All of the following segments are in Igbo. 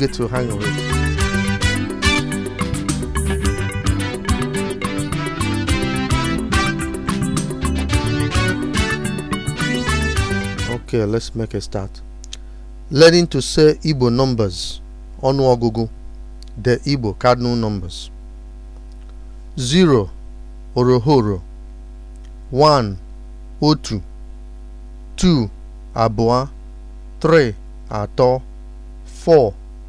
good to hang with. Okay, let's make a start. Learning to say Igbo numbers, onuogugu the Igbo cardinal numbers. 0 orohoro 1 otu 2 abụọ 3 ato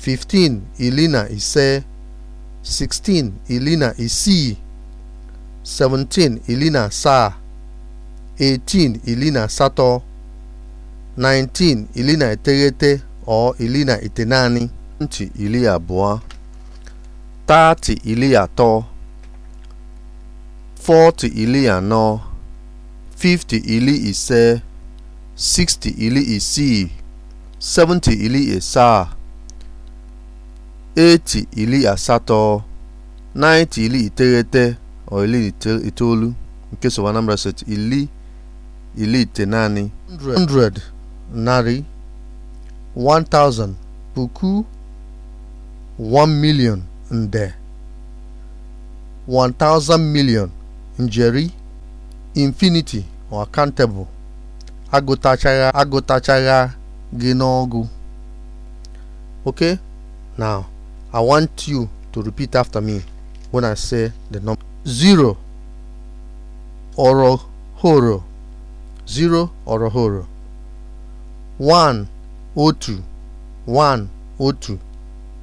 fifteen ili na ise sixteen ili na isii seventeen ili na saa, eighteen ili na asatọ nineteen ili na iteghete ọ ili na itenani twenty ili abụọ thirty ili atọ forty ili anọ fifty ili ise sixty ili isii seventy ili asaa eti ili asatọ naịnti ili iteghete o ili itoolu nke sọ Anambra State ili ite naanị 100 narị 1000 puku 1 million nde thousand million njeri infinity or countable agụtachagha gị n'ọgụ ok now I want you to repeat after me when I say the number zero orohoro zero orohoro one otu one otu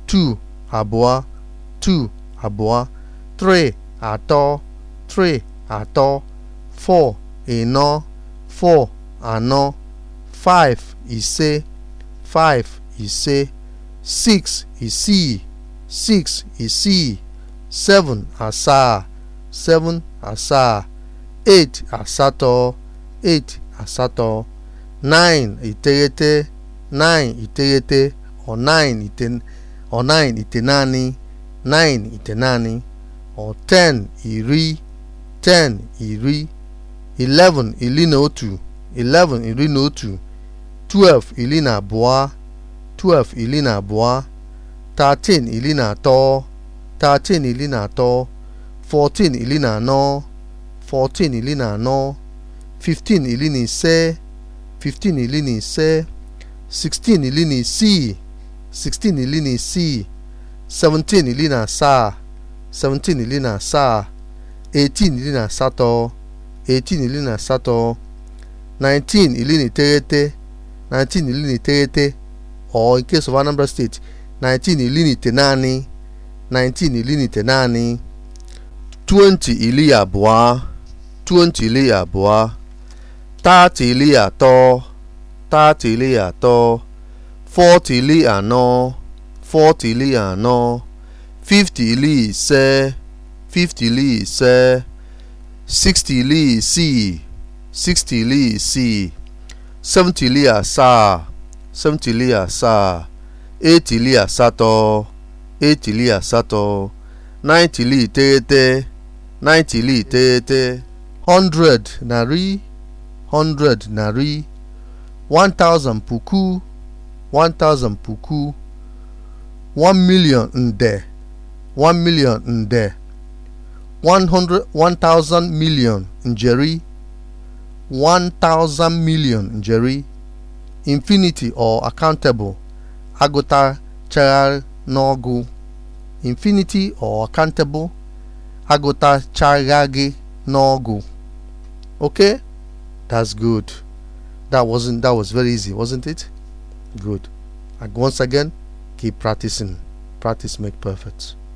two abụọ two abụọ three atọ three atọ four ịnọ four anọ five ise five ise six isii 6 isii 7 asaa 7 asaa 8 asatọ eight asatọ 9 iteghete 9 iteghete ọ 9 ite ọ 10 iri ten iri 11 iri na otu iri na otu 12 iri na abụọ iri na thirteen ili na ato thirteen iri na atọ fourteen ili na fifteen na ise fifteen na sixteen ili na isii sixteen na isii seventeen ili na seventeen iri na eighteen na asatọ eighteen iri na asatọ nineteen na State 19 ili nite naanị 19 ili 20 ili abụọ 20 ili abụọ 30 ili atọ 30 ili anọ 40 ili ise 50 ili ise 60 ili ili asaa etili asatọ etili asatọ naịtili iteghete iteghete 100 narị narị 1000 puku 1000 puku 1 million nde 1 million nde million njeri million njeri infinity or accountable agụtachaghị infinity or countable agụtachaghị n'ọgụ okay that's good that wasn't that was very easy wasn't it good and once again keep practicing practice make perfect